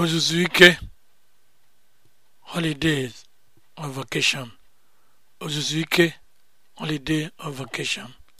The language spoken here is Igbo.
ozuzu ike holidays of vacation ozuzu ike holiday of vacation